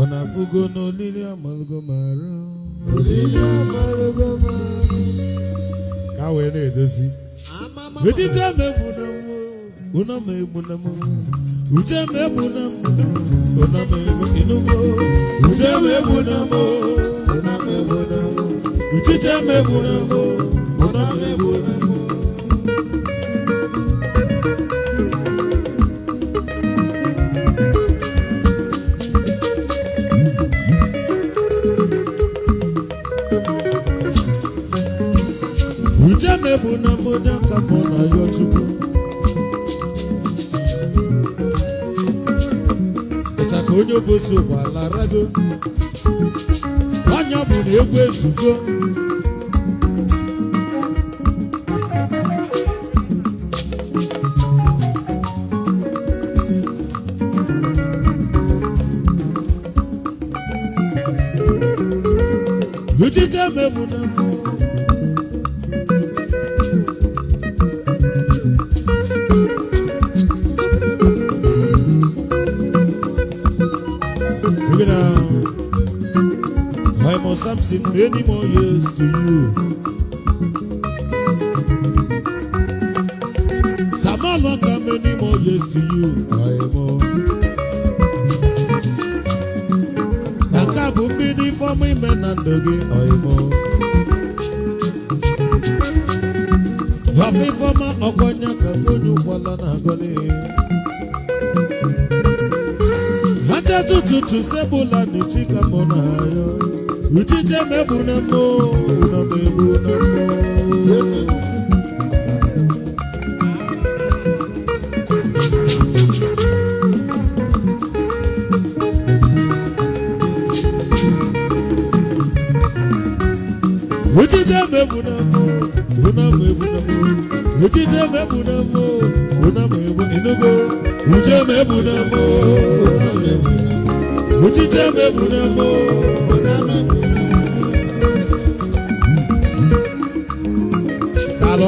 ọ na-afụgo n'olili amalụgo olili amalụgo marụ na-edozi etiti emegbu na ụnọ ma egbu na mụ uche ma na mụ ụnọ ma uche na mụ ụnọ na uchiche egbu na mụ egwu sokwa larado onye bụ na egwu ezugo Uchite mebu na mbụ any more years to you. Samalaka, many more years to you. I am all. for me, men and again, I am all. Wafi for my Ogonya, Kabunu, Walana, Gone. Hata tututu sebula nitika mona Uchiche meburu na mbụ mebu na Uchiche meburu na mbụ na mbụ Uchiche na mbụ na mbụ Uchiche na mbụ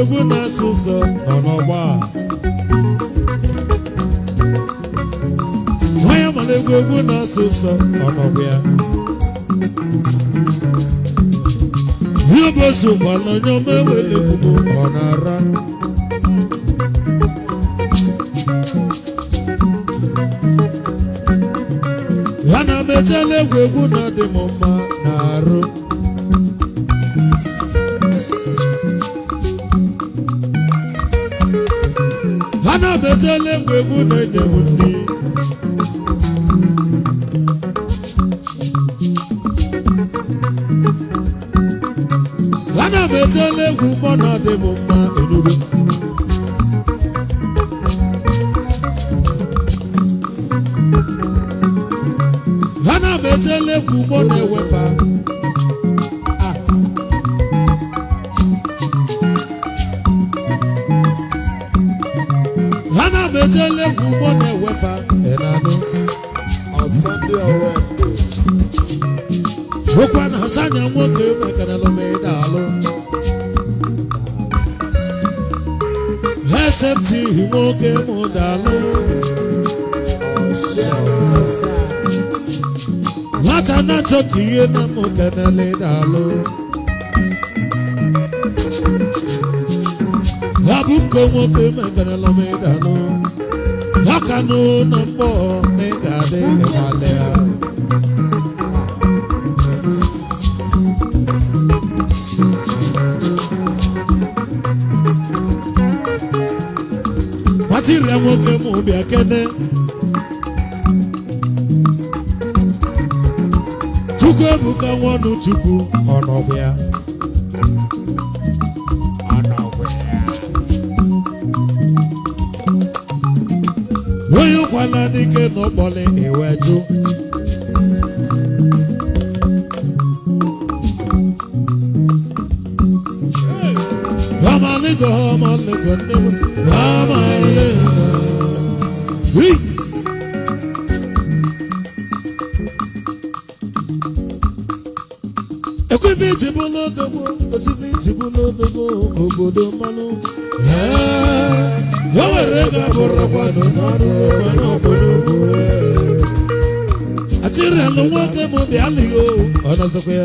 egwu na-asụ ụzọ nọ n'ọgba ya egwu egwu na-asụ nọ n'ọgba ya ihe bụ ozu gbala onye ọma ewele ọ na-ara ya na-ametela egwu egwu na mma na arụ edetela egwu egwu na edebu ndị ana m etela egwu mgbọ na ọdịbụ asepti nwoke m dalụ nwata na-achọ ka ihe na kenele dalụ ọ bụ nke nwoke m nụ na na tire nwoke m bịa kene chukwu ebuka nwanụ chukwu ọnọbụ ya onye ụkwala n'ike n'ụkpọlị iwe e jụ Ramaligo, Ramaligo, Ramaligo. Ekwefi ti bu lodogbo, osifi ti bu lodogbo, obodo mmanụ. Eh, o nwere ego abụrụ kwado n'ọrụ ọrụ obodo Atịrịalụ nwoke m dị alịghị o, ọ nọzọkwa ya.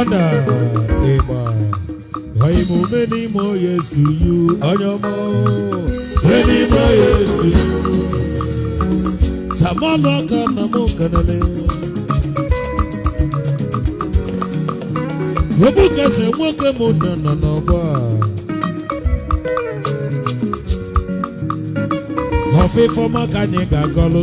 ana a, ọ imo many more years to you onye ọma many more years to you samanụ aka na m kanele ogbukese nwoke mụ nọ nọ n'ọgbọ a ọfịfọ maka anyị ga-agọlụ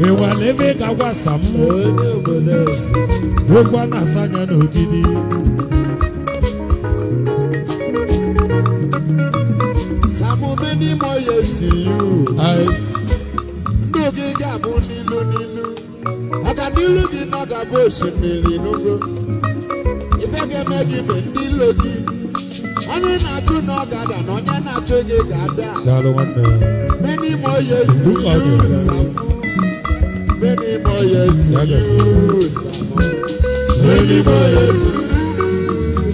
ewela na ga gwasa m okwu a na-asa anya n'ogidi Some many more years to you. Ndụ gị ga-abụ n'ilu n'ilu. Maka n'ilu gị na ga-abụ osimiri n'ugwu. Ife ga-eme gị mgbe ndị ilo gị. Onye na-achụ na ọ ga-ada na onye na-achụ gị ga-ada. Many more years to you.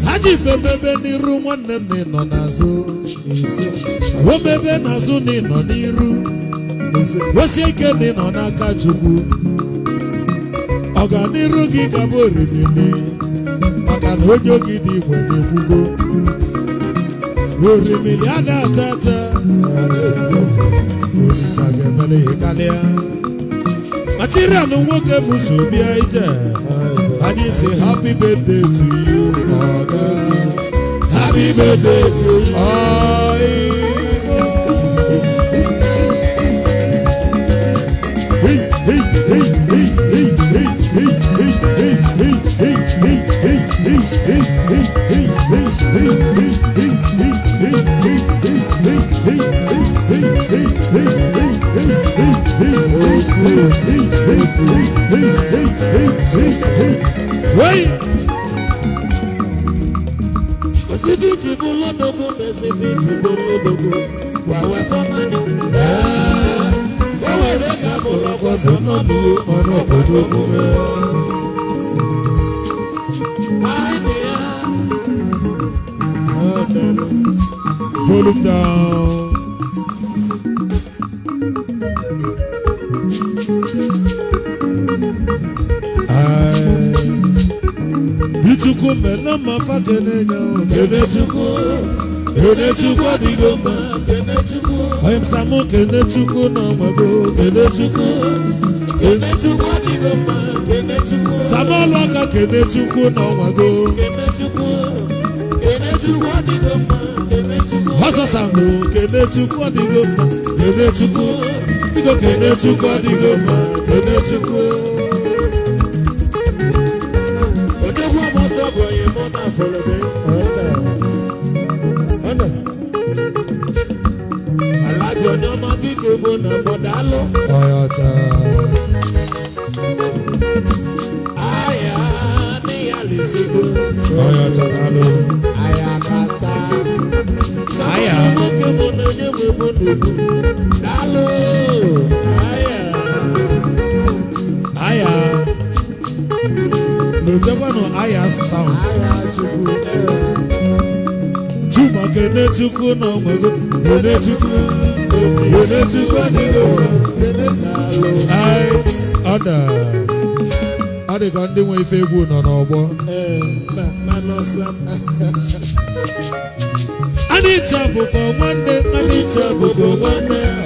ha ife bebe n'iru nwanne m na ịnọ n'azụ obebe n'azụ na ịnọ n'iru osie ike na ịnọ n'aka chukwu ọganiru gị gaba orimili maka na onye gị dị igwe na-ekwugo orimili a na-ata ata ga-emere ya karịa atiri anụ nwoke bụsobia ije anyị si happy birthday to you mother. happy birthday to you. Hey, hey, hey, hey, hey, hey, hey, hey, hey, hey, hey, hey, hey, hey. Osifiji bụ na mbe na kene mma onye msamụ kene chukwu na ọgbago kene chukwu kene chukwu dịgo mma aka kene na ọgbago kene Kenechukwu, kene chukwu biko ọ̀yọ̀tà. àyà ni àlùsígbò. ọ̀yọ̀tà lálọ. àyà kàtà. àyà. sọ́kòkò mo nà ní mo mo dùkú. lálọ. àyà. àyà. n'otekwanu àyà sound. àyà chukwu. Chukwuma kene chukwu n'ọmọ ego kene chukwu. ọ dị ka ndị nwe ife egwu nọ n'ọgbọ anita bụkwa nwanne anita bụkwa nwanne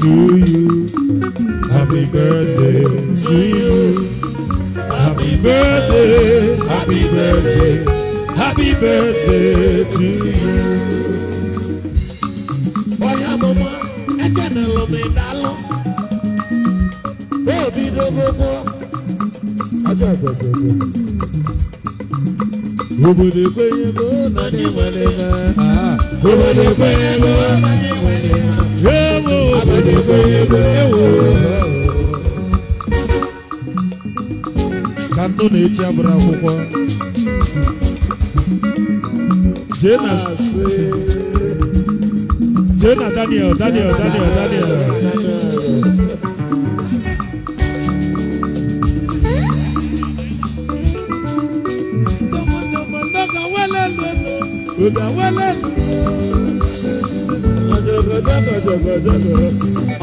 to you. Happy birthday to you. Happy birthday, happy birthday, happy birthday to you. Oya mama, ẹjẹ na lo mi da lọ. Bó o bí dogogo. obodo ekwenyego na anyị nwere ha obodo ekwenyego na anyị nwere ha ewo obodo ekwenyego ewo ka ndụ na-eti abụrụ akwụkwọ jee na Daniel Daniel Daniel Daniel kò dá wálé nù.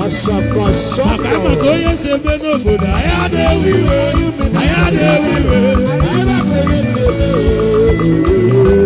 Asapasapa. Àkàmọ̀ tó yẹ ṣe gbé náà kò dá. Ayáde wíwé, ayáde wíwé, ayáde wíwé.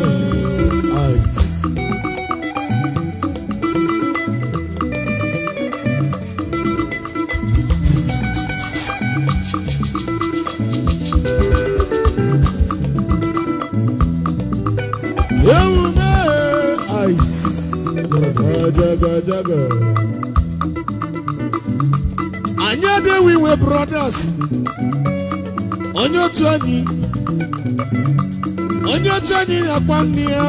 anyị ewu iwe brothers onye otu anyị onye otu anyị na-akpa nne ya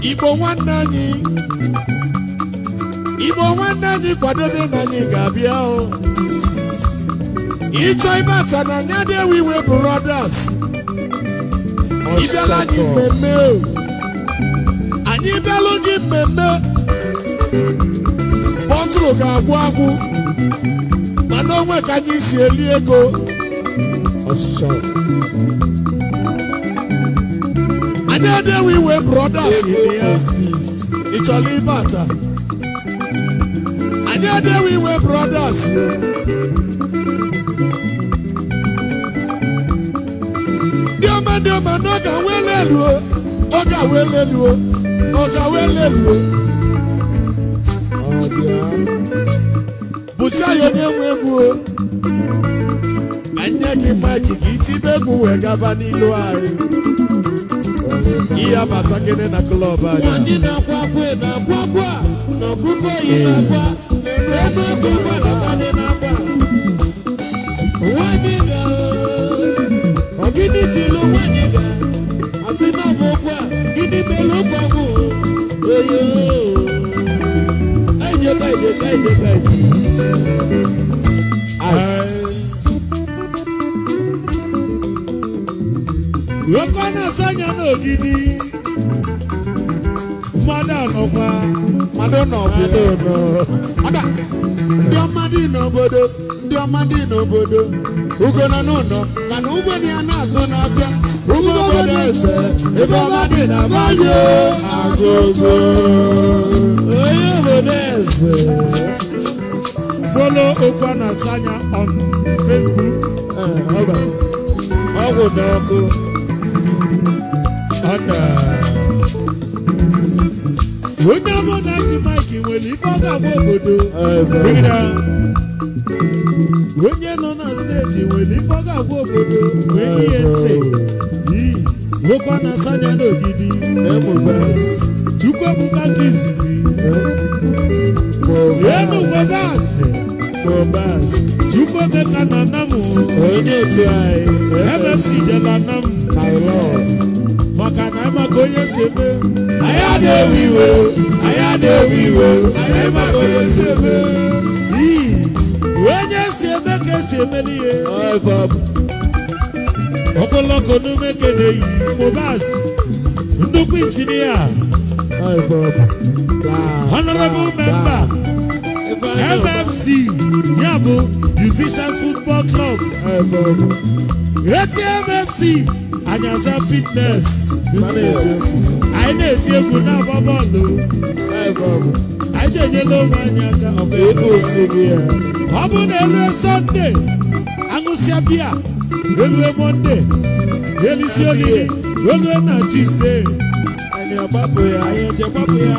igbo nwanne anyị igbo nwanne anyị kwadobe na anyị ga-abịa ịchọ ibe ata na anyị adịghị iwe brothers ịbịala anyị mmemme anyị bịalụ mmemme bọtụlụ ga-agwụ agwụ mana onwe ka anyị si eli ego anyị edewe iwe brothers ị chọrọ ịbata anyị edewe iwe ga dioma elu o ọ ga aweleluo elu o onye na-enwe egwu ma nne gị mma gị tibe egwu wee gaba n'ilu anyị ihe abata gịnị na klọb anyị ogidi ga asị na ọ bụ ụgwọ gịnị mere ụgwọ bụ Rokwana sanya n'ogidi mmadụ anọkwa mmadụ ọba ndị ọma dị n'obodo ndị ọma dị n'obodo ugo nọ n'ụlọ mana ugbo na ya na-azụ n'afịa eze onye folo on eh, onye ji nwere ife agba obodo onye nọ na steeti nwere ife ọ ga obodo nwere ihe ntị nwekwa na asanya n'ogidi chukwu ebuka nke izizi elu webasị chukwu emeka na nam mfc jela nam maka na amaka onye si eme anyị na-ewe iwe anya na-ewe iwe anya maka onye si e eme onye ogologo ọdún mekede yìí Mohbad nnukwu injinia honorable member MFC, ya musicians football club eti mmc anyaza fitness anyị na-eti egwu na-agba bọọlụ anyị chenyela onwe anyị aka eh. ọ bụ na elu Sunday aṅụsịa biya rue mọnde elisi ohihe rue na tuzdee anyị agbapụ ya anyị echegbapụ ya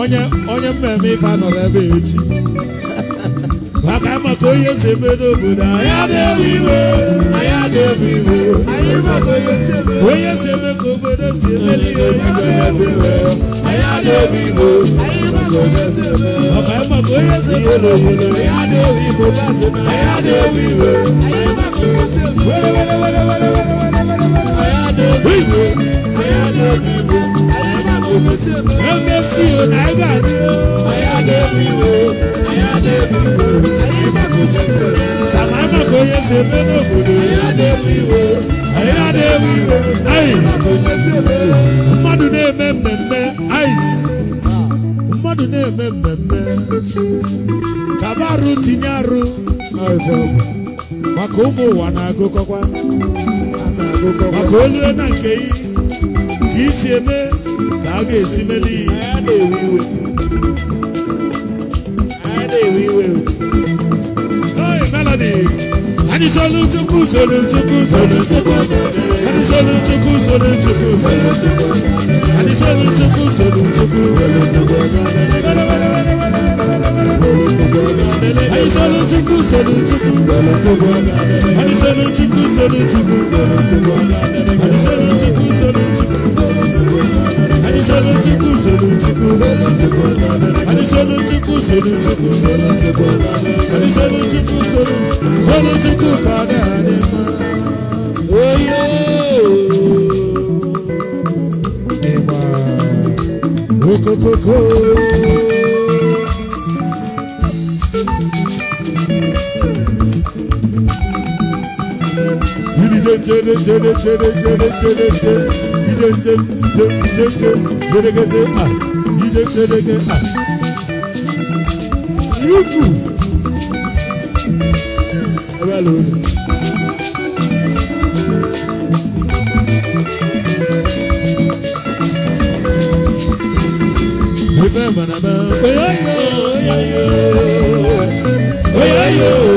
onye onye mmemme ife anọrọ ebe echi maka maka onye si eme n'obodo anyị Anyị onye si eme ka obodo si eme anyị na-ebi igbo onye sebe n'obodo anyị na-ebi igbo na-ebi igbo were na si mmadụ na-eme mmemme mmadụ na-eme mmemme kaba arụ tinye arụ maka ụmụ ụwa na-agụkọkwa maka onye na nke i ka isi eme ka a ga-esi mele iwe Hey, Melody! anyị zọlụ chukwu zọlụ chukwu zọlụ chukwu anyị zọlụ chukwu zọlụ chukwu zọlụ chukwu anyị zọlụ chukwu zọlụ chukwu zọlụ chukwu anyị zọlụ chukwu zọlụ chukwu zọlụ chukwu anyị zọlụ chukwu zọlụ chukwu zọlụ chukwu anyị chukwu Anizolutuku solutuku Anizolutuku solutuku Anizolutuku solutuku Solutuku kada anima Oyo Dema Okokoko Yürü tere tere tere tere tere tere jẹjẹ jẹjẹ gbẹdẹgẹdẹ à jíjẹ gbẹdẹgẹ à. yúkù ẹ bá lò ó. mo fẹ́ mọ̀nàmọ́. oyoyo oyoyo oyoyo.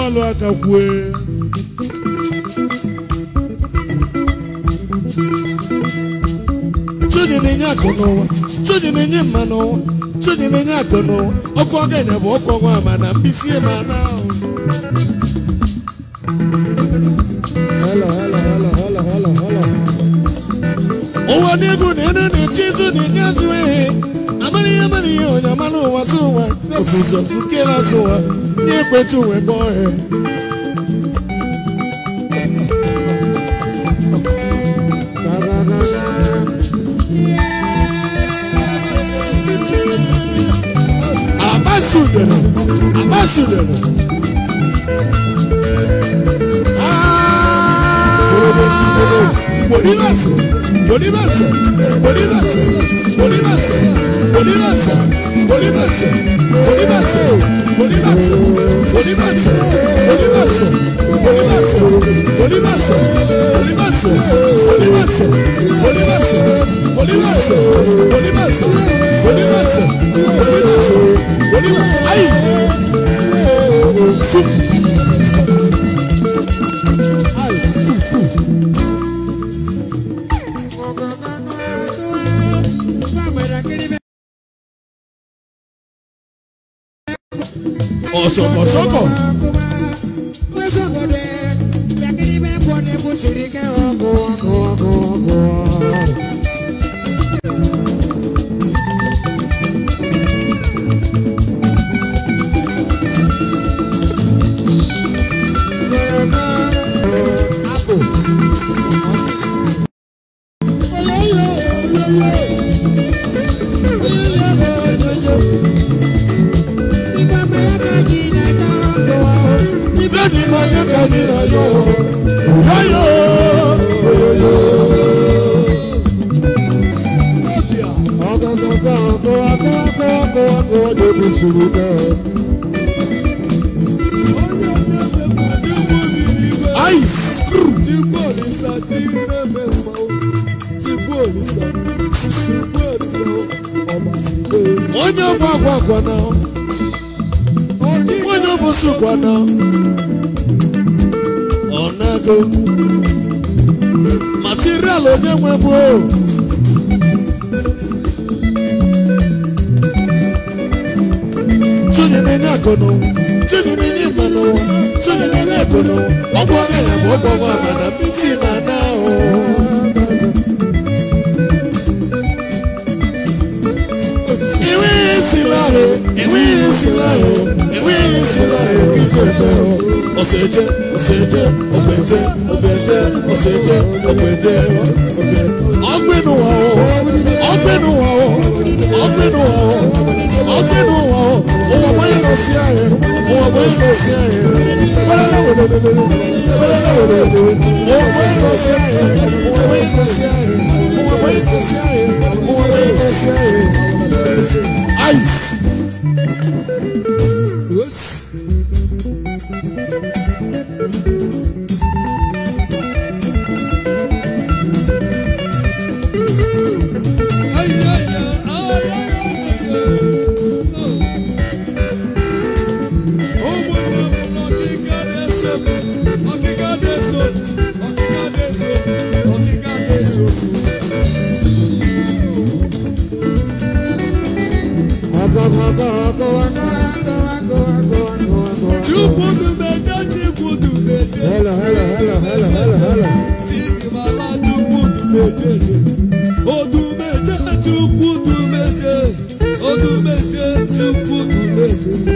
ọlụ aka kwue chudi na-enye akụ n'ụwa chudi na-enye mma n'ụwa chudi na-enye akụ n'ụwa ọkụ ọga bụ ọkụ ọgwa ama na mbisi e ma na ahụ nyamani onyamano wasuwa kusuza sukela suwa nyekwetu weboe abasudena abasudena Bolívar, Bolívar, Bolívar, Bolívar oníbẹ̀sẹ̀ oníbẹ̀sẹ̀ oníbẹ̀sẹ̀ oníbẹ̀sẹ̀ oníbẹ̀sẹ̀ oníbẹ̀sẹ̀ oníbẹ̀sẹ̀ oníbẹ̀sẹ̀ oníbẹ̀sẹ̀ oníbẹ̀sẹ̀ oníbẹ̀sẹ̀ oníbẹ̀sẹ̀ oníbẹ̀sẹ̀ oníbẹ̀sẹ̀ oníbẹ̀sẹ̀ oníbẹ̀sẹ̀ ayi. agolo ọgbọ abẹlẹ fọgbọ ọmọ àgbàdo mi ti máa ná o. ìwé ìsìn láàrú ìwé ìsìn láàrú ìwé ìsìn láàrú kí fẹ́fẹ́ o. ọ̀sẹ̀ jẹ́ ọ̀sẹ̀ jẹ́ ọ̀gbẹ̀ jẹ́ ọ̀gbẹ̀ jẹ́ ọ̀sẹ̀ jẹ́ ọ̀gbẹ̀ jẹ́ ọ̀gbẹ̀. ọ̀gbẹ̀nu wà o ọ̀gbẹ̀nu wà o ọ̀gbẹ̀nu wà o ọ̀gbẹ̀nu wà o òwò wọ́n lọ sí ààrẹ. Ice. Odumete Chukwu Dumete Odumete Chukwu Dumete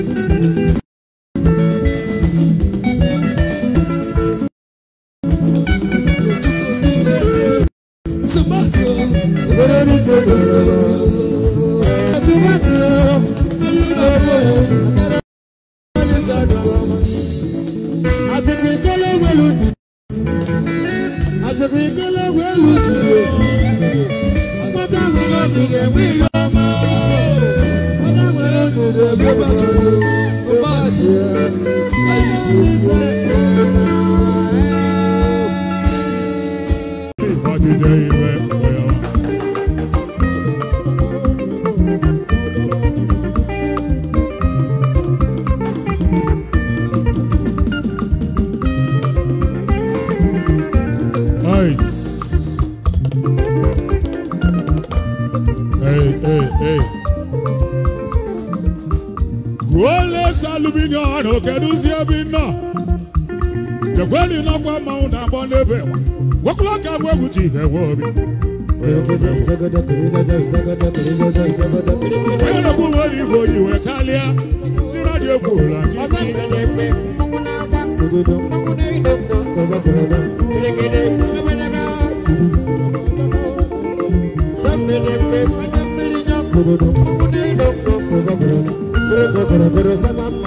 inye ọrụ kedụzi ebe nọ jekweli n'ọkwa mmanwụ na-agbọ n'ebe nwokwula ka agwa egwu ji ewe obi onye na nwere ife oyi wee karịa si radio egwu ụlọ Thank you.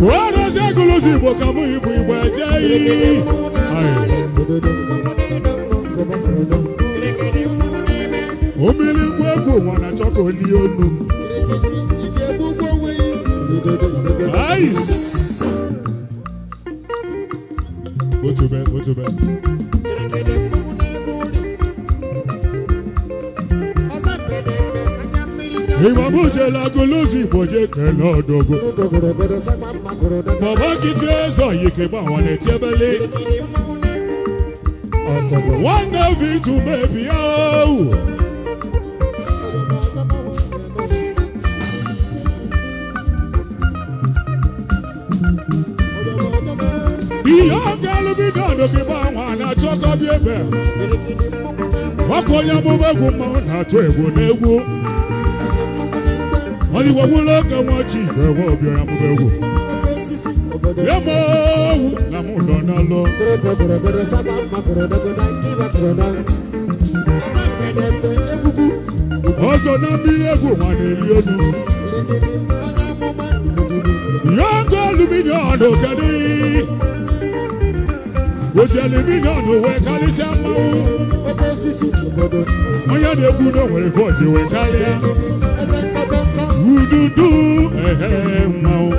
werezi egụlụzi igbo ka mụ ibu igbo jee iyi omili egwu ụwa na achọ Iwa buje la golozi boje kena dogo Baba kite zo yike ba wane tebele Wana vitu bebi au Ihe ọga alụbi dọdụ gị gba nwa na-achọkọ bi ebe Ọkụ onye amụma egwu mmanwụ na-atụ egwu n'egwu ọdịwa wụlọ ka nwachi ewe ọbịara amụba egwu ya ma ọwụ na mụ nọ n'alọ ọsọ na mmiri egwu ma na-eli elu ya ngụ aluminiọnụ kedu osi aluminiọnụ wee karịsịa mmanwụ onye na-egwu na o nwere vootu wee karịa dudu ehe mmanwụ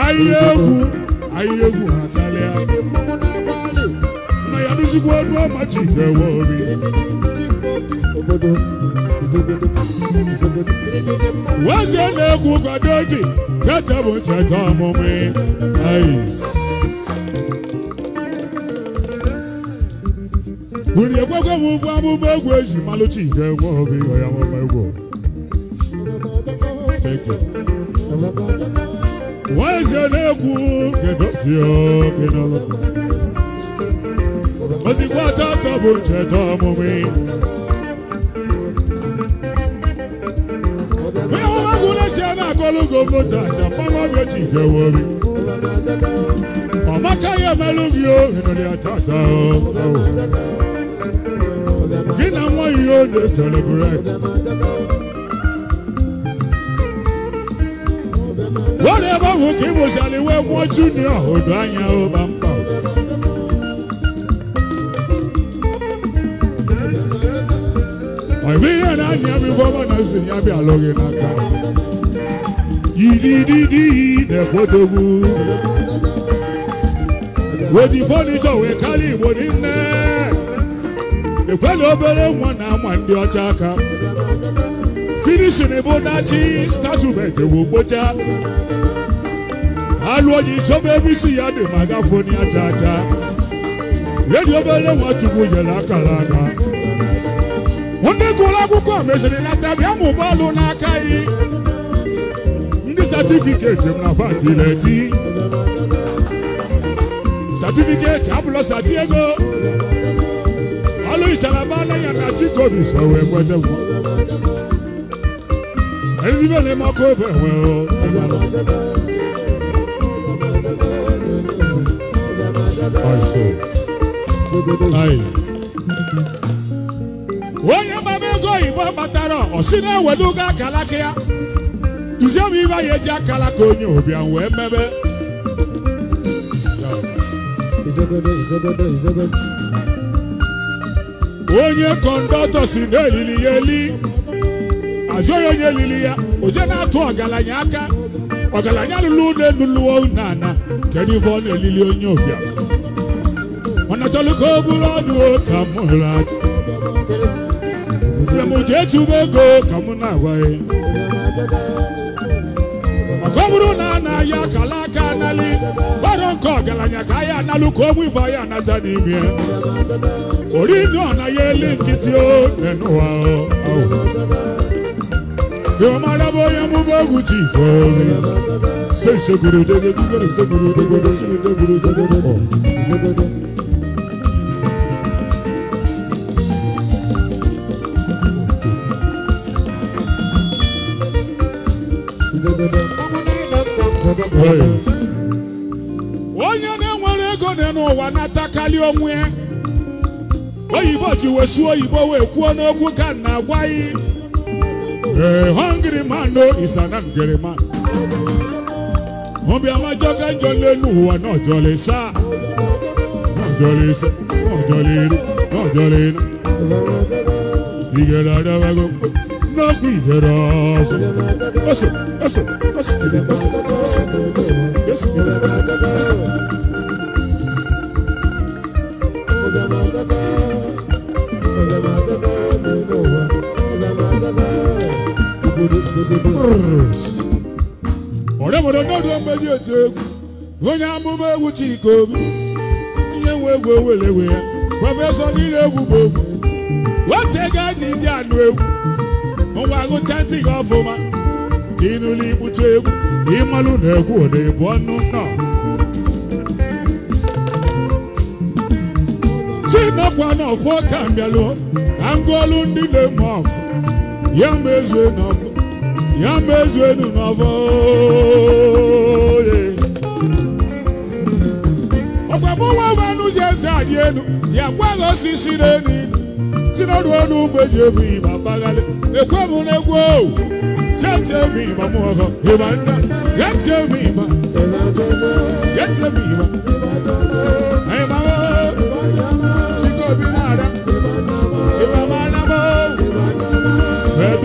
ahịa egwu na ya ọma na-egwu kwado ji tete bụ were egwegwe ugwu ụgwọ egwu eji malụchi ihe nwe obi ya mụma egwu nwa eze na-ekwu gedodiogenolo ozikwa tatọ bụ ncheta ọmụmụ onye ọmaka ya gị you dey celebrate ahụ ka ịbụsala iwe mmụọ junia odo anya ụba mkpa ọ bụ ihe na-anya m ife ya bịa alụghị n'aka yidididi na-ekwodogwu weji fọnichọ wee karịa igbo nne ekwela obere nwa na ama ndị ọcha aka finishin bụ dachi statument bụ gbocha alụ onye chọba ebe isi ya dị ma gafoni aja acha. edi obere nwa chukwu nyere akara aka ndị gụrụ akwụkwọ meziri lata bịa ma alụ n'aka yi ndị satifiketi m na pati na-eti satifiketi abụla sati ego isanabana ya na chikobi so we mwete mwa ezibe ne makobe we o also nice onye gbaba ego oyibo gbatara ọ si na-ewelugo akalaka ya eji akalaka onye ụbịa we mebe onye kọndọtọ si n'elili ya eli azụ ya onye elili ya oje na-atụ ọgaranya aka ọgaranya lụrụ ụlọ elu lụọ ụlọ ana kedu ife ọ na-elili onye ụbịam ọnachọlụ ka o bụrụ ọdụ ka m hụrụ aka m jee chụba ego ka m na-agwaghị maka ọ bụrụ na a na-ahịa akala aka analị gbara nke ọgaranya ka ahịa analụ ka ogbu ife ahịa anata n'ime orí náà láyé líǹkì tí ó nẹnu wa ọ. Yóò máa dábọ̀ yẹn mú bọ́ọ̀gù tì kọ́ mi. Ṣé ìṣègùrù dédé dúgbòrò ṣègùrù dédé ṣègùrù dédé pọ̀? Onye na-enwere ego nọ n'ụwa na-atakali onwe ya. oyibo ji wesuo oyibo wee kwuo n'okwu ka na agwa hungry man no is an angry man ama jọga njọ n'elu ụwa iru n'ọjọlịsa n'ọjọlịri n'ọjọlịri igere adabago n'okwu igere ọzọ oso ọsọ ọsọ ọsọ oso oso oso oso ọsọ. na-atụ egwu onye amụma egwu Chika Obi onye nwe egwu owelewe ya prọfesọ niile egwu bụ ofu wetega ji ewu anụ egwu ngwa gụcha ntị gị ọfụma ịnụla igbute egwu ịmalụ na egwu ọ na-ebu ọnụ nọ na ọfọ ka mbịalụ na ngwaọlụ ndị na-eme ya ma ezue ya mezu enu n'ọfọ oye ọkwamụwa ji eze adị enu ya gwaghị osisi n'enu si n'ọdụ ọnụ mgbe ji ebu ịba mgbaghalị ekwe m n'egwu owu senti emi ịba m ọhọ ịba nna ya ịba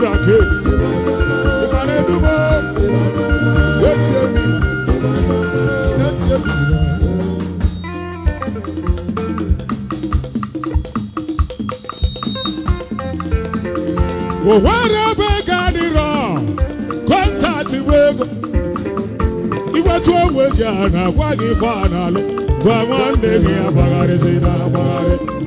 ya m ịba ụwara ebe ego adịrọ kọntaktị bụ ego iwetu onwe gị a na-agwa gị ife a na-alụ gwa nwanne gị na agbagharị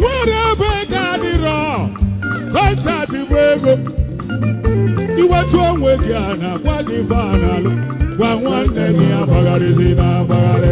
nwere ebe ego adịrọ kọntaktị bụ ego iwetu onwe gị a na-agwa gị vanalụ gwa nwanne gị agbagharịzi na agbagharị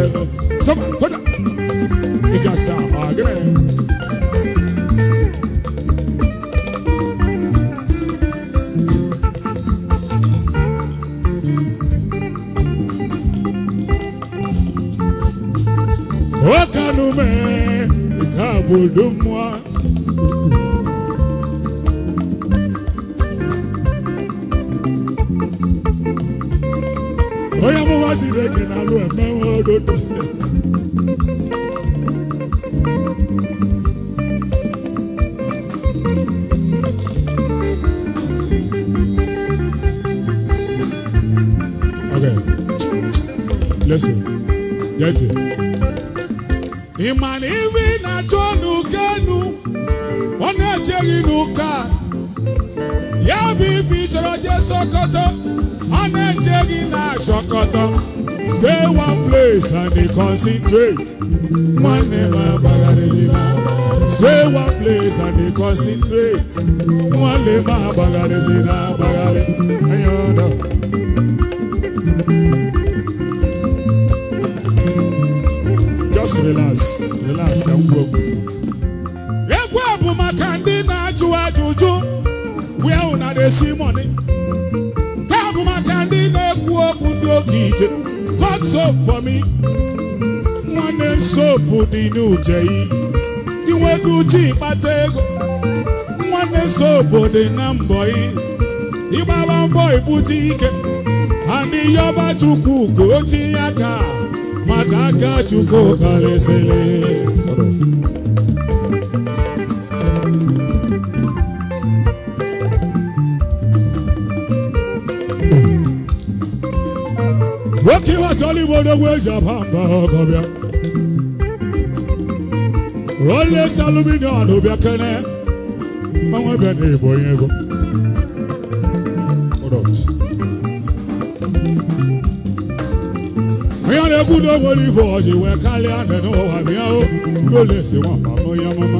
Kumasi regional Emewa road. Okay, listen, get it. Imanivi na chonu kenu, ona cheri nuka ya bụ ife ịchọrọ jee Sokoto a na-eche gị na Sokoto stay one place and dey concentrate nwanne m agbagharịghị m stay one place and dey concentrate nwanne m agbagharịghị na agbagharị anya ọdọ just relax relax ka m gwuo okwu na-esi mọni ya bụ maka ndị na-ekwu okwu ndị oge ije God so for nwanne m dị n'uje yi inweta uche ịkpata ego nwanne sopu dị na mbọ yi ịgbaba mbọ ike ha ndị yọba chukwu ka ya tinye maka aka chukwu karịsịrị Igbo odogwu eji aba mba ọgọbịa ole saluminion bịa kene mmanwụ ebe na Igbo onye ego ya na-ekwu na onwere ife ọjị wee karịa nị n'ụwa bịa o n'ụlọ esi nwamba onye ọmụma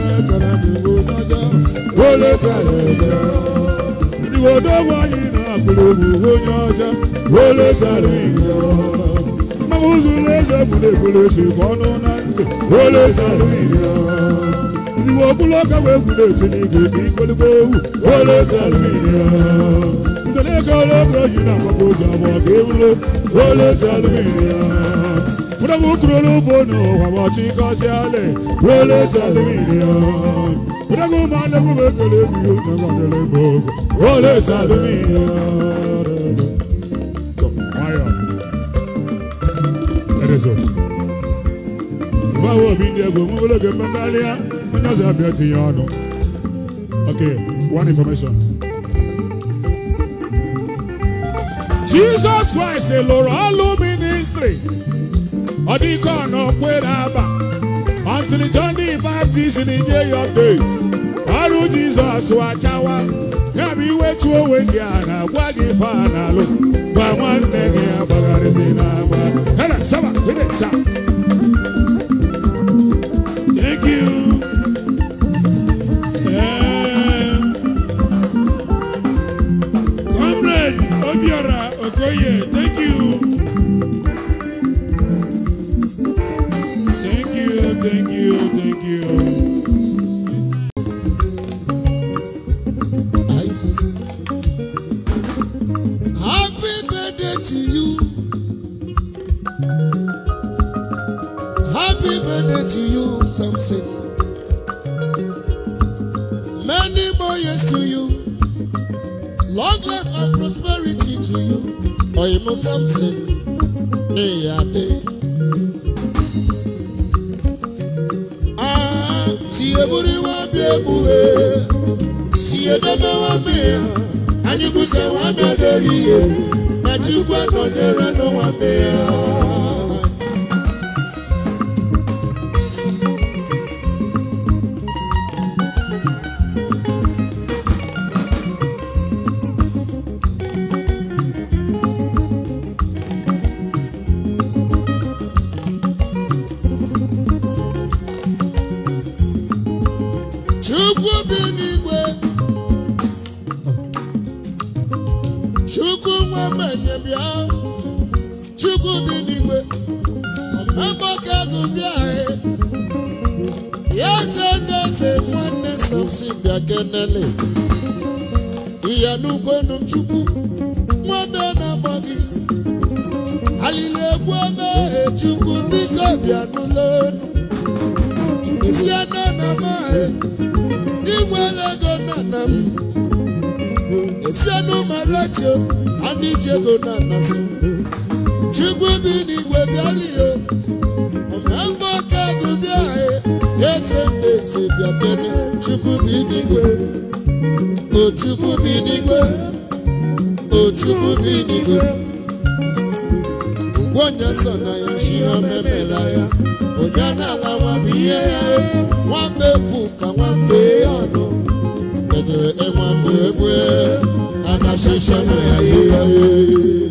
kọ́ra ti wo tọ́jọ́ ó lè sàlẹ̀ jẹ́. Ìwò tó wáyé náà kúrò wò yànjẹ́ ó lè sàlẹ̀ jẹ́. Mọ̀kúsù lè ṣe kúlẹ̀kúlẹ̀ ṣe kọ́nú náà tẹ̀ ó lè sàlẹ̀ jẹ́. Ìwò kúlọ̀ kẹwẹ́ kúlẹ̀ ṣe ní gègé kólíkó wù ó lè sàlẹ̀ jẹ́. Ìtẹ̀lẹ́kọ̀ọ́ lọ́kọ̀ọ́ yìí náà kọ́kọ́ sọ̀rọ̀ kéwúlò ó lè sàlẹ̀ jẹ́. unamukurulubono wamachikasiale welesaluminia unagumanagumekelegiunagadelebogo welesaluminia ibawoobindiegomubologemembalia unazabiatinye ọnụ Okay, one information. Jesus Christ, Lord, all ministry. ọdịkọna okwere aba until John the Baptist na-enye ya update ọrụ Jizọs achawa ya bụ iwetu onwe gị a na-agwa gị fa gwa nwanne gị agbagharịzi n'agba Thank you. Comrade some Samson. gọọmenti bịa chukwu dị n'igwe agbaka ego bịa ya ndeze nwanne samson bịa kenele ya n'ugwenu chukwu nwanne na-agba gị alili egbu emeghe chukwu biko bịa n'ụlọelu isi anọ na mahị inwere ego nna nna m osienu maratio ndị ji ego na anasị chukwu bi n'igwe bịalio omemgbe aka gụbịa e, eze mbezi bịakene chukwu bi n'igwe o chukwu bi n'igwe o chukwu bi n'igwe gwonye so na ya shi ha memela ya onye na-alawa bụ ihe ya e. nwambe ka nwambe ọnụ enwe mgbe egbe a na-asịsha na ya ihe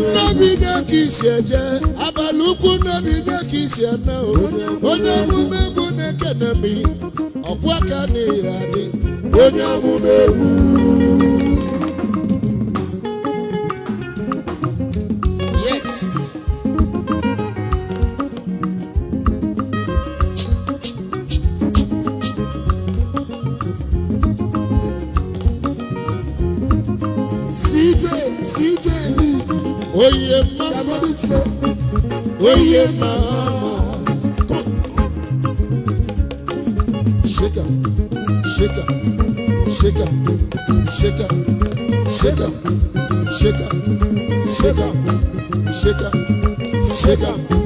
nnebigo ka isi eje abalị ukwu nnebigo ka isi eme onye emume egwu na-ekenemi ọkwa na ihe adị onye emume egwu shake up, shake up, shake up, shake up, shake up,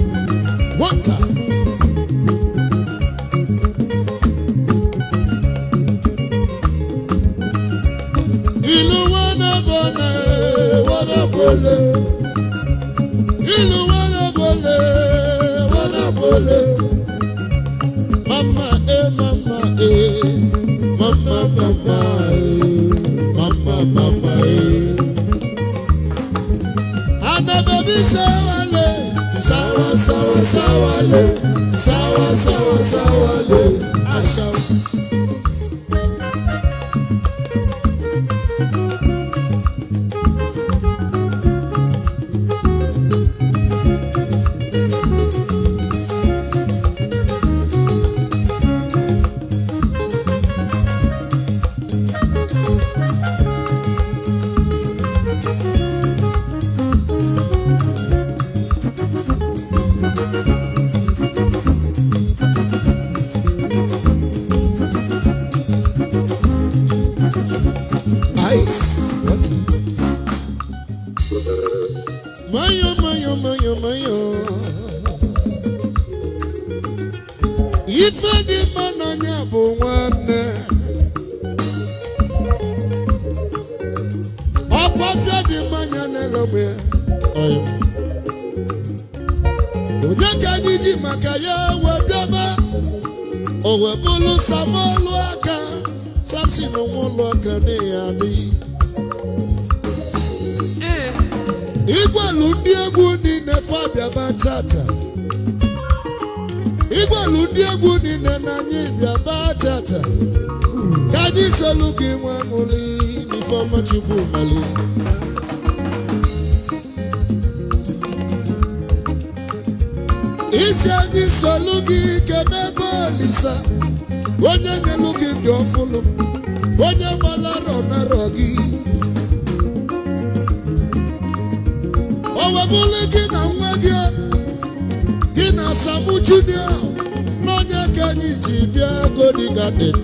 గుహలు isi anyị solu gị ike n'ebe olisa onye nyelu gị ndị ọfụlụ onye gbalarọ narọ gị o webụlụ gị na nwa gị gị na Samu Junior n'onye ka anyị ji bịa Goni Garden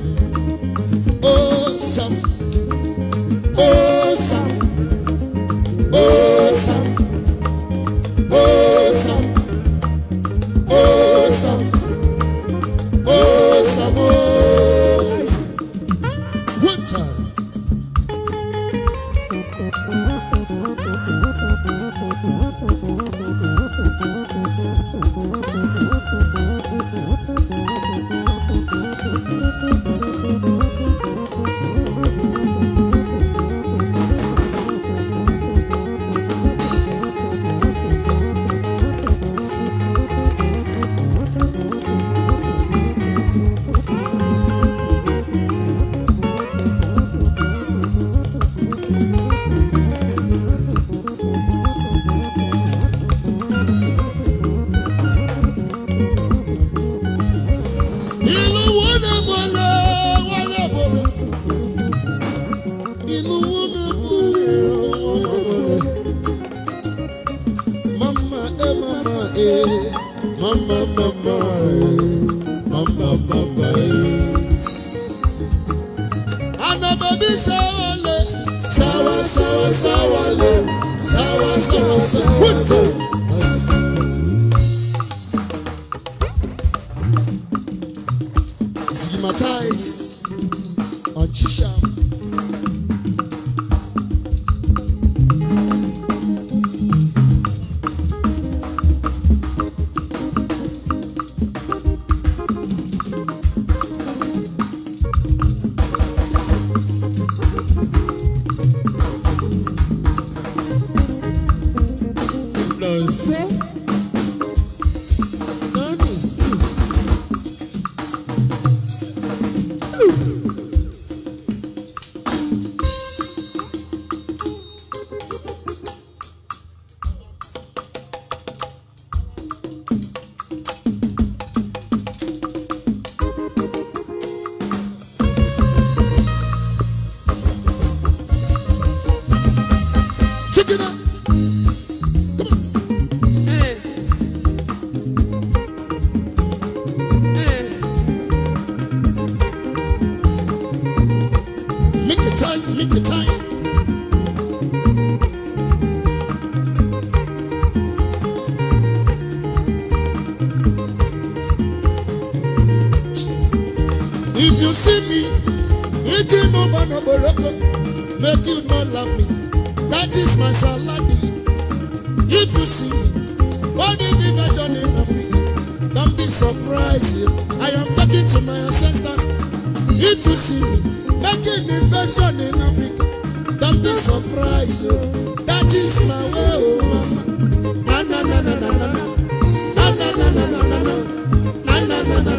na na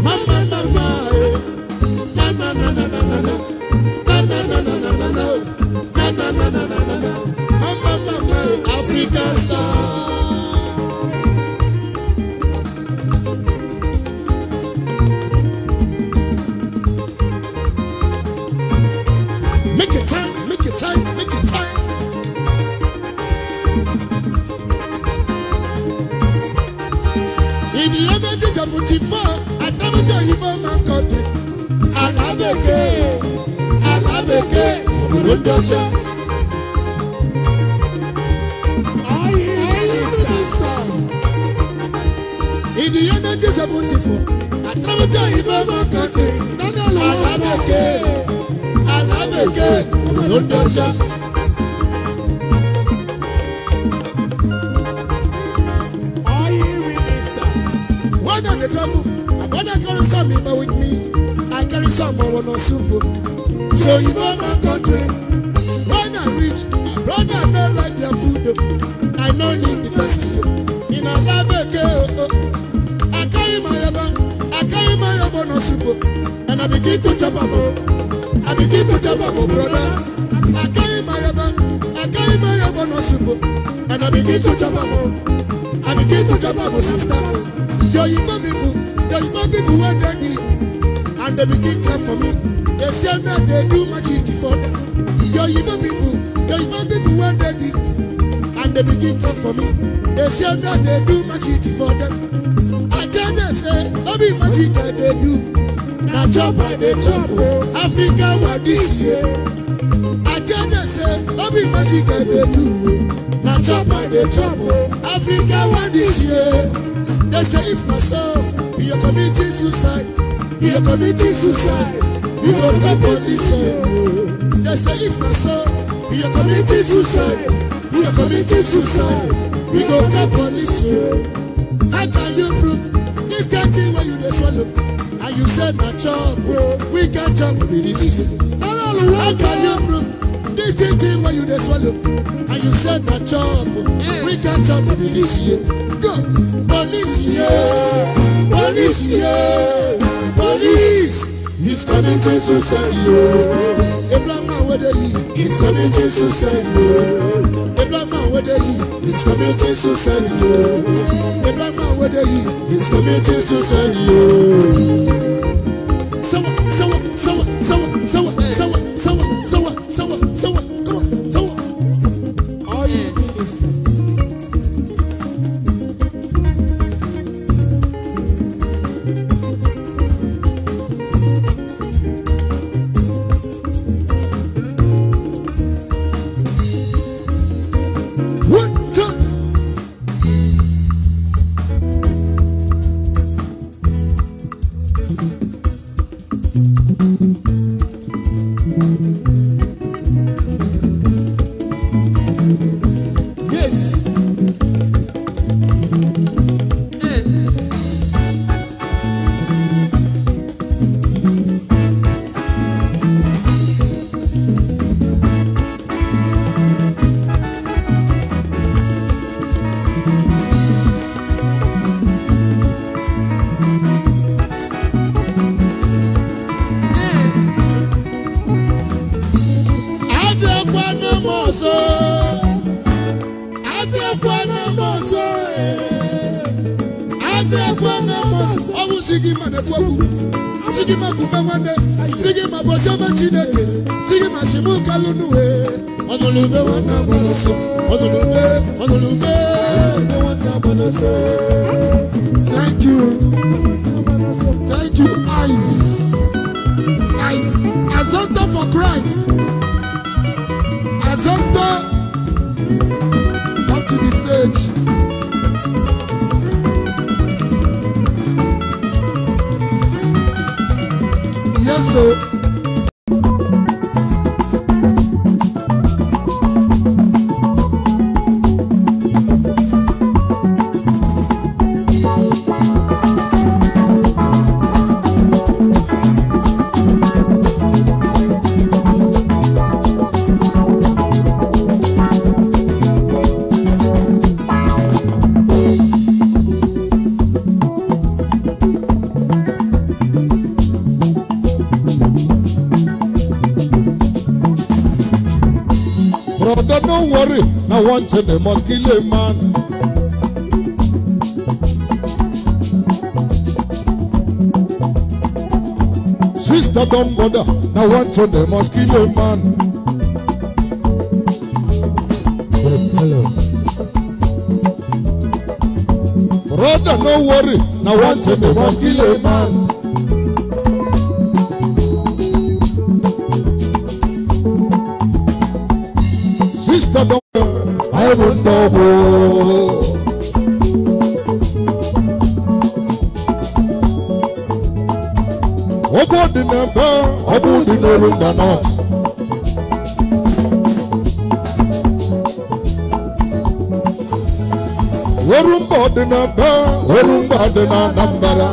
na na na na na God that does it They say if not so, we are committing suicide. We are committing suicide. We go get police here. How can you prove this dirty when you just swallow? And you said my job, we can't jump with this. How can you prove this dirty when you just swallow? And you said my job, we can't jump with this. Go, police here, police here, police. He's coming to society. Abraham whether he He's coming to society. Abraham whether he He's coming to society. Abraham whether he He's coming to society. want and they must kill a man. Sister don't bother, now one and they must kill a man. Brother, no worry, now one and they must kill a man. dị n'Anambra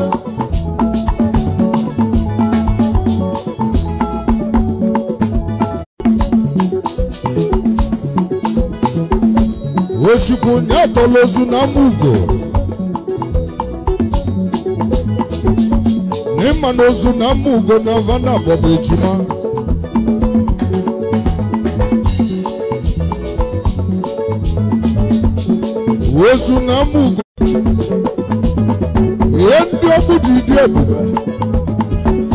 ozugbo ozu na Amugo n'ịma na na Amugo na Havana bọbụ ejima na ji dị ebube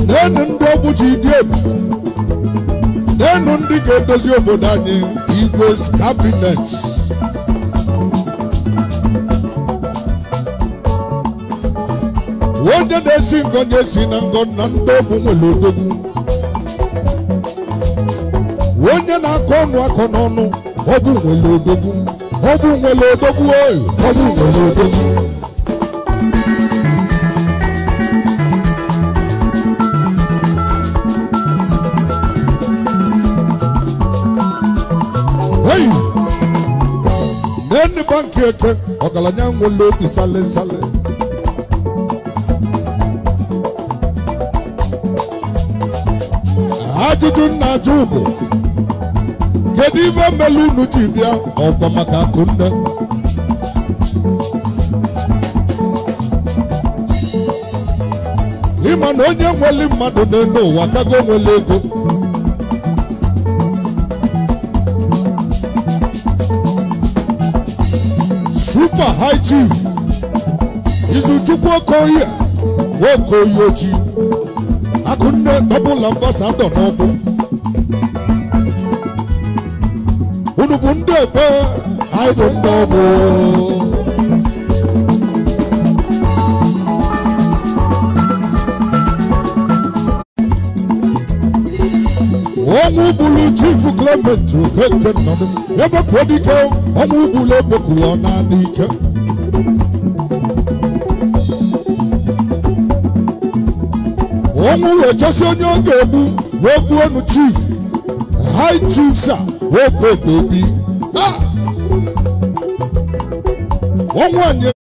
na-enu ndị ọgwụ ji dị ebube na-enu ndị ga-edozi obodo anyị igwe's cabinet onye na-esi ngọ na-esi na ngọ na ndị ọgwụ nwere odogwu onye na-akọ ọnụ akọ n'ọnụ ọgwụ nwere odogwu ọgwụ nwere odogwu oyi ọgwụ nwere odogwu eke eke ọgaranya nwere obi sale sale ajụjụ nna-ajụ bụ kedu ime mmelụ unu ji bịa ọkwa maka akụnne ịma na onye nwere mmadụ n'elu ụwa kago nwere ego Papa High Chief Izuchukwu Okoye Nwokoye Oji Akunne Double Ambassador n'ọkụ unu bụ ndị ekpe anyị bụ ndị ọgbụ chief gọọmenti okeke nnọdụ ebeku dike ọnwa ugbula ebeku ọ naanị ike ọnwụ echosi onye ọ ga-egbu wee gbuo nu chief hai chief sa wee pepe obi ọnwụ anyị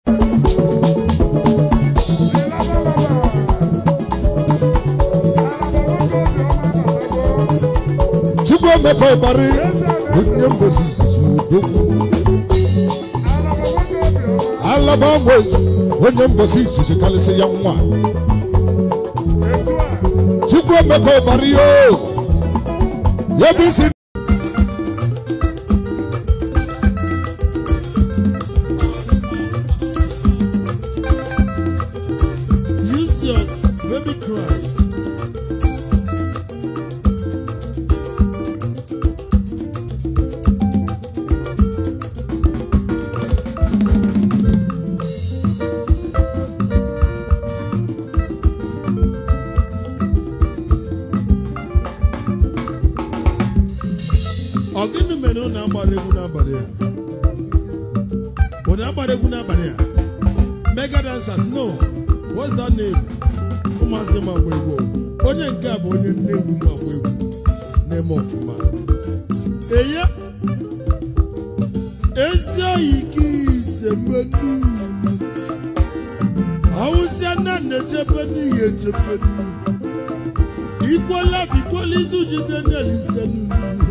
obari onye mbosi zuzu alaba ọgwụ ezu onye mbosi izuzu karịsị ya nwa chukwu emeka obari oh. yoo isi ọ gịnị mere na agbara egwu n'abalị a? onye agbara egwu n'abalị ya mega dancers no what's that name ụmụazị magba egwu onye nke a bụ onye nne egwu magba egwu na-eme ọfụma eye esi oyike ise menu awụsịa na na-echebe n'ihi echebe ikwola ikwola izu jide n'elise n'ugwu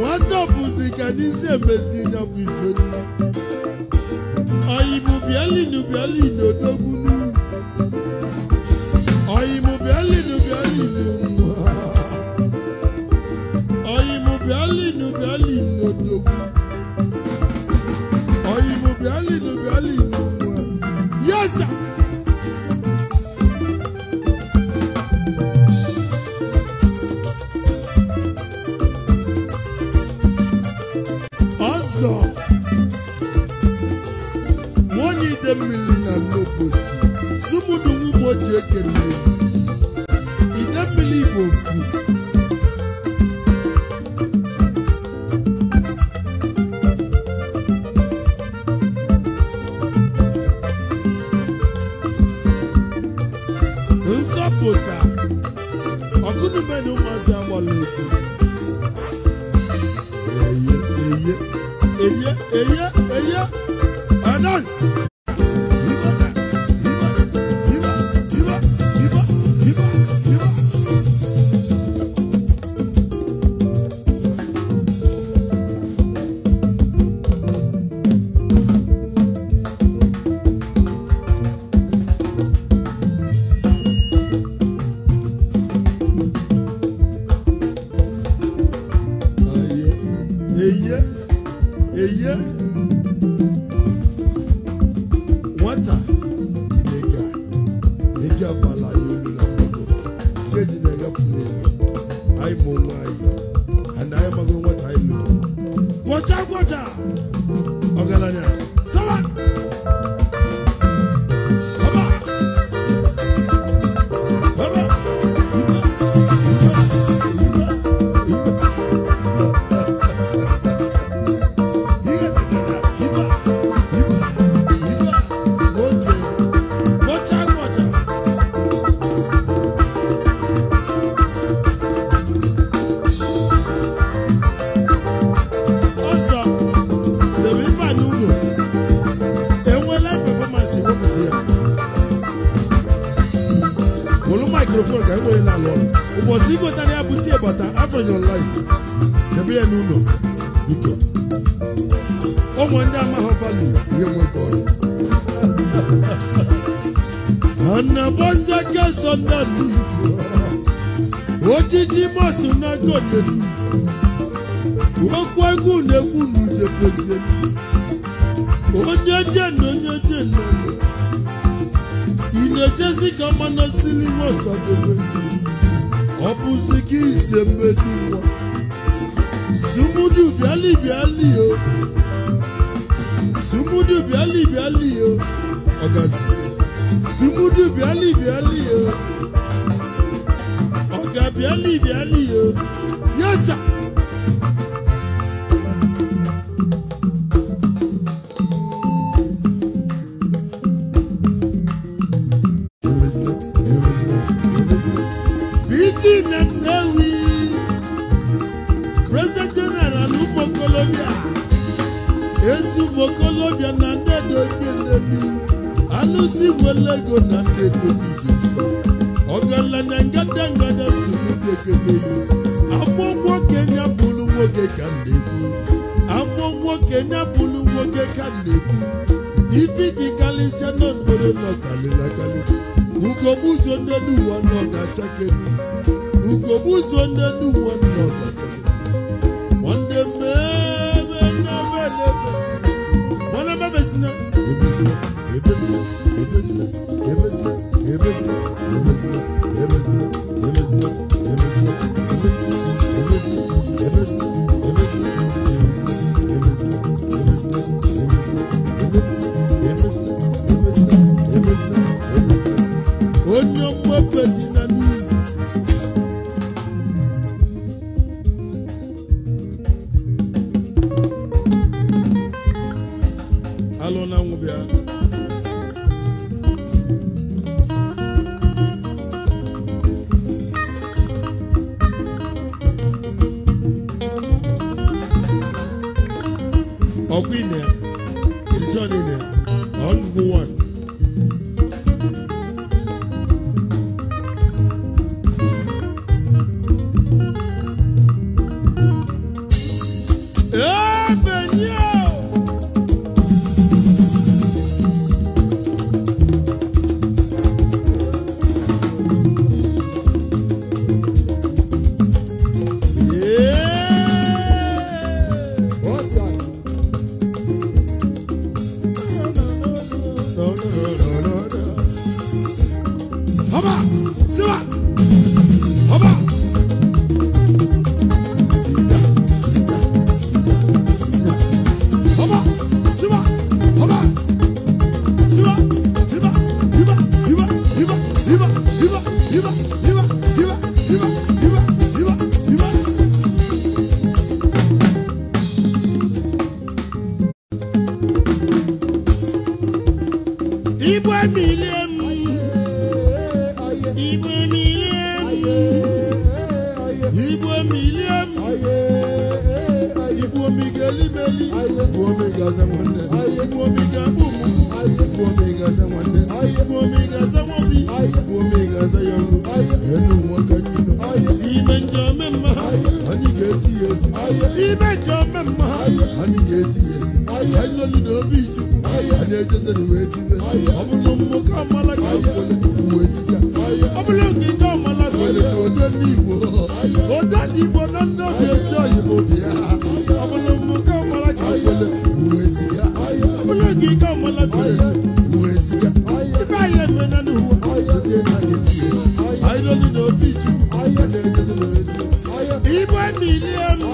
nwata bụzi ka n'isi emezi na bụ ifedi oyibo bialinu odogwu esembedu wọn sumudu biali biali o sumudu biali biali o ọgazi sumudu biali biali. okolobịa ezi ụmụ na ndị dokenebi alụsị nwere ego na ndị dobigizo ọgaranya ngada ngada na n'udekeneyi agbọ nwoke ya bụrụ nwoke ka na-ekwu agbọ nwoke nwoke ka na ifi dị karịsịa n'obodo nọkarịlakarị ugogbuzo ndị nọ ga ndị Ebesine, ebesine, ebesine, ebesine, ebesine, ebesine, ebesine, ebesine, ebesine, ebesine, ebesine, ebesine, ebesine, Igbo emile m Igbo emile m Igbo emile m Igbo omiga elimeli Igbo omiga ze nwanne Igbo omiga mbumu Igbo omiga ze nwanne Igbo omiga ze nwobi Igbo omiga ze yọrụ enu nwoke n'inu anyị nọ n'obi ichukwu anyị ejezere wee tibe ọ bụrụ nwoke amala ka onye uwe sika ọ bụrụ nkịta amala ka onye na ode n'igbo ode n'igbo na ndị obi ezi oyi bụ obi ya ọ bụrụ nwoke amala ka onye uwe sika ọ bụrụ nkịta amala ka onye uwe sika ife anyị eme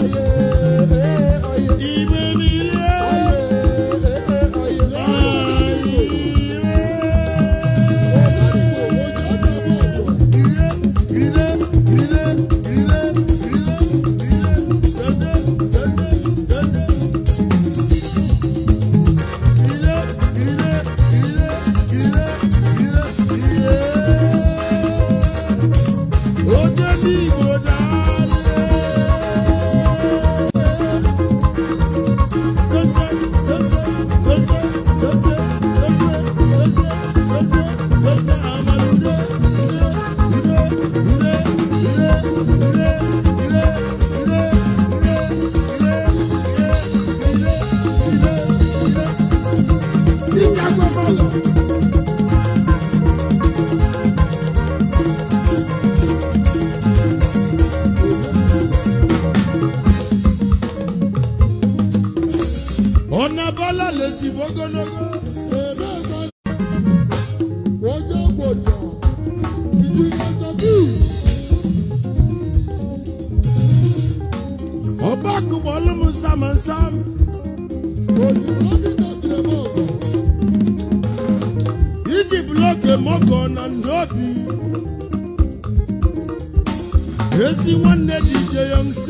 Esi nwanne DJ Young C.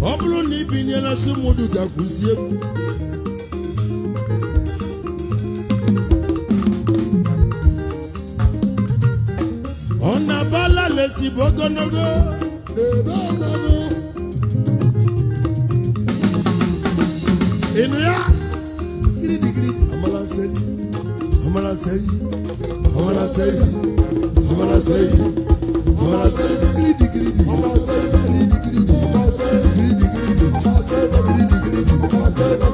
Ọ bụrụ na ibinye na Sumudu ga-akụzi egwu. Ọ na-abala lesibu ogologo n'ebe ya? Gidi gidi, amala nseri, amala nseri. say, say, say, say, say, Thank say.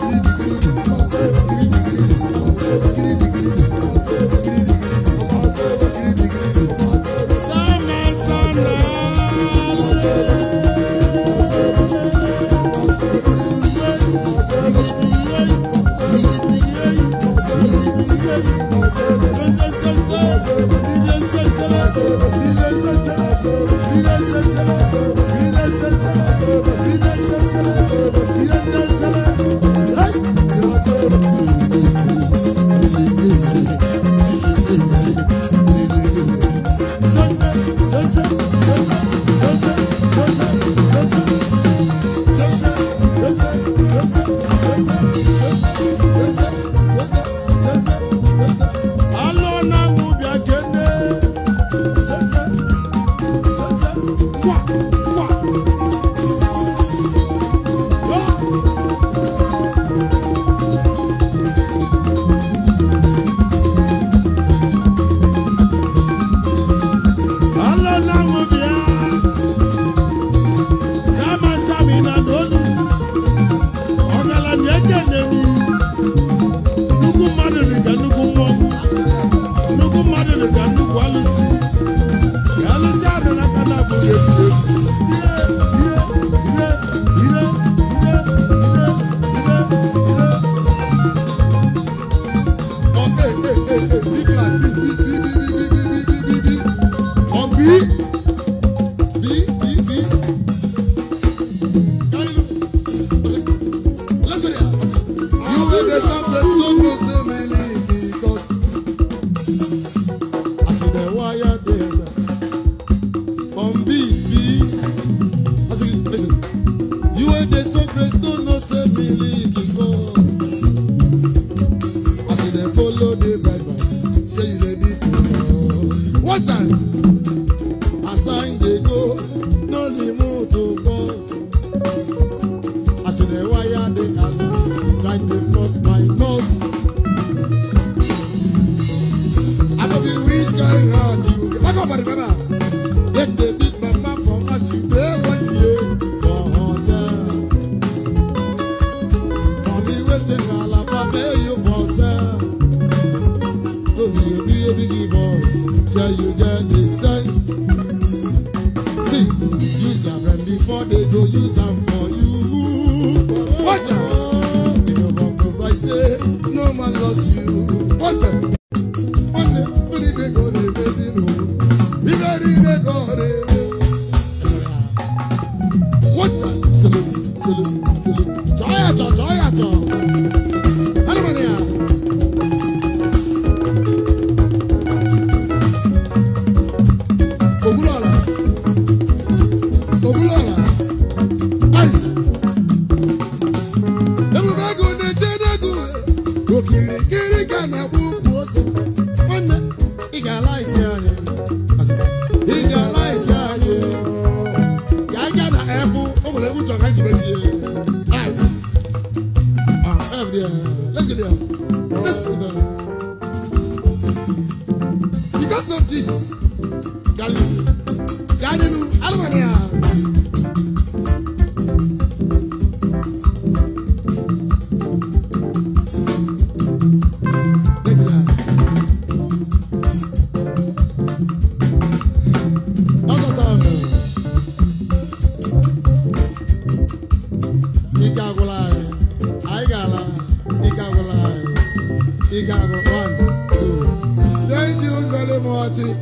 Hobby.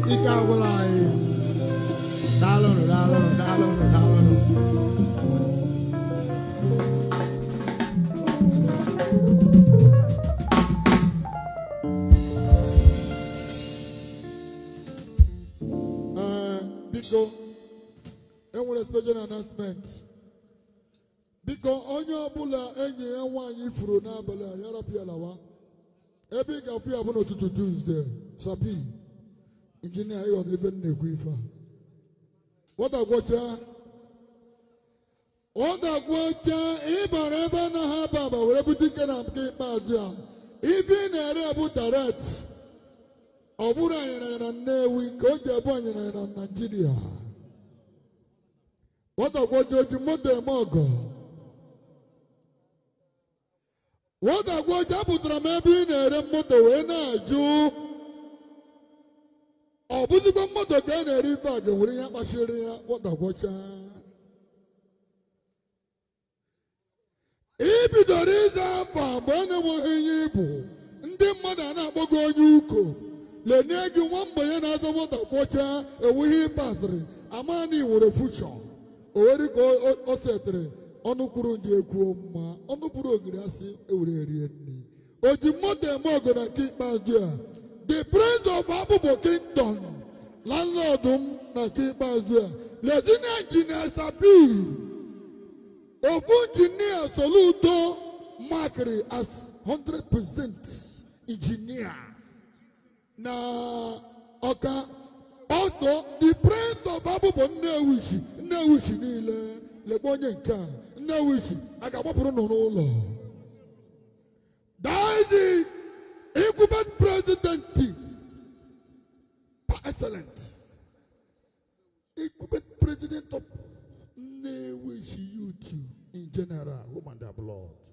ike agwụla anyị e. daalụnụ daalụnụ daalụnụ daalụnụ eh, biko enwere special announcement biko onye ọbụla enyi ya nwaanyị furu n'abalị a yarapịa lawa ebe ị ga-afụ ya bụ n'ụtụtụ Tuesday sapi injinia ịghọtara ife na-ekwu ife a ọ ga-agwọcha ịbara ebe na ha baba were bute ike na nke ikpeazụ a ife ị na-ere bụ daret ọ bụrụ anyịranya na Nnewi nke o ji ebu anyịranya na Naijiria nwatagwocha oji moto eme ọgọ nwatagwocha apụtara m ebe ị na-ere moto wee na-ajụ ọ bụzikwa mmadụ ka a na-eri ibe a ga-enwere ihe kpachiri ya gwọtagwọcha ibidoro ịza afọ mgbe a na-enweghị ihe ịbụ ndị mmadụ a na-akpọ gị onye uko lenye gị nwa mgbe ya na-aza gwọtagwọcha enweghị ibe asịrị ama nwere iwere o nwere ka o setịrị ọnụ kwuru ndị ekwuo mma ọnụ kwuru ogiri asị ewere erie nri o ji mmadụ eme ọgụ na nke ikpeazụ a The prince of Abubo Kingdom, landlord Nàkí Bàzúà, Lẹ́sìnà Jìnnà Sàbí, Òfun Jìnnà Soludo Makiri as hundred percent engineer. Na ọ̀ka ọ̀tọ̀ the prince of Abubo Nnewichi Nnewichi niile lekwa onye nke a Nnewichi a ga-agbapụrụ nọ n'ụlọ incumbent president par excellent. incumbent president of Nnewi youth in general woman that blood.